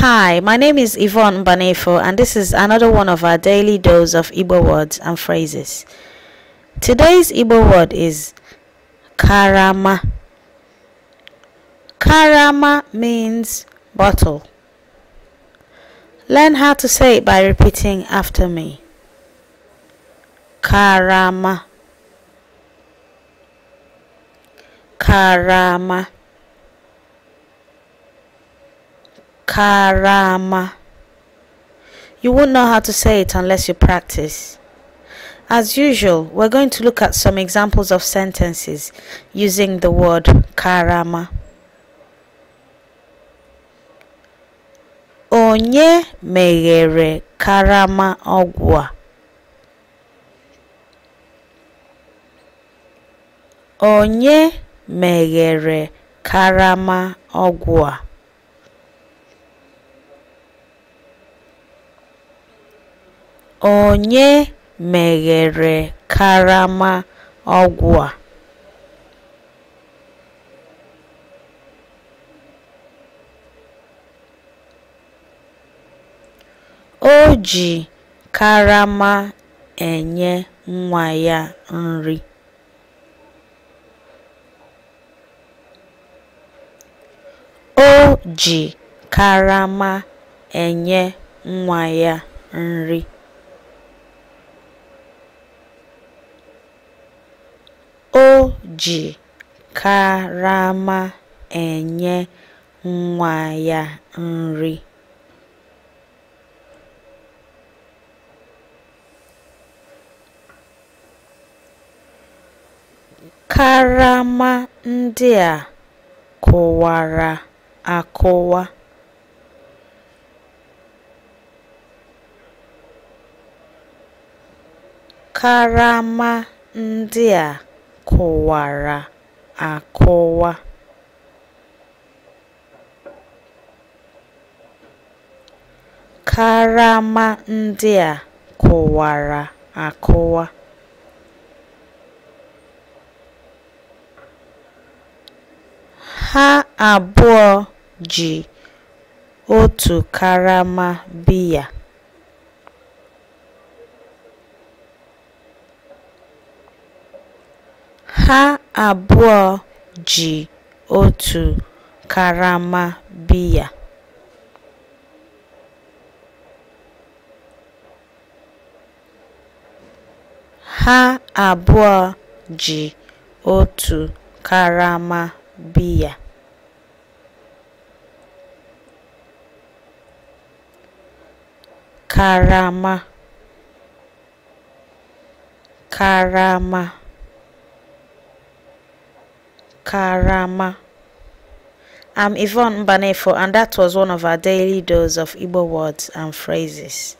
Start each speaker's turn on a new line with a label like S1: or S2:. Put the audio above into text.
S1: Hi, my name is Yvonne Banefo, and this is another one of our daily dose of Igbo words and phrases. Today's Igbo word is karama. Karama means bottle. Learn how to say it by repeating after me. Karama. Karama. Karama. You won't know how to say it unless you practice. As usual, we're going to look at some examples of sentences using the word karama. Onye meghere karama ogwa. Onye meghere karama ogwa. Onye meghere karama ọgwụ a? O ji karama enye nwa ya nri. O ji karama enye nwa ya nri. ji karama enye nwa ya nri. Karama ndị a kụwara akụwa. Karama ndị a kọwara akọwa karama ndị a kọwara akọwa ha abụọ ji otu karama biya Ha abụọ ji otu karama biya. karama karama Karama. I'm Yvonne Banefo, and that was one of our daily dose of Igbo words and phrases.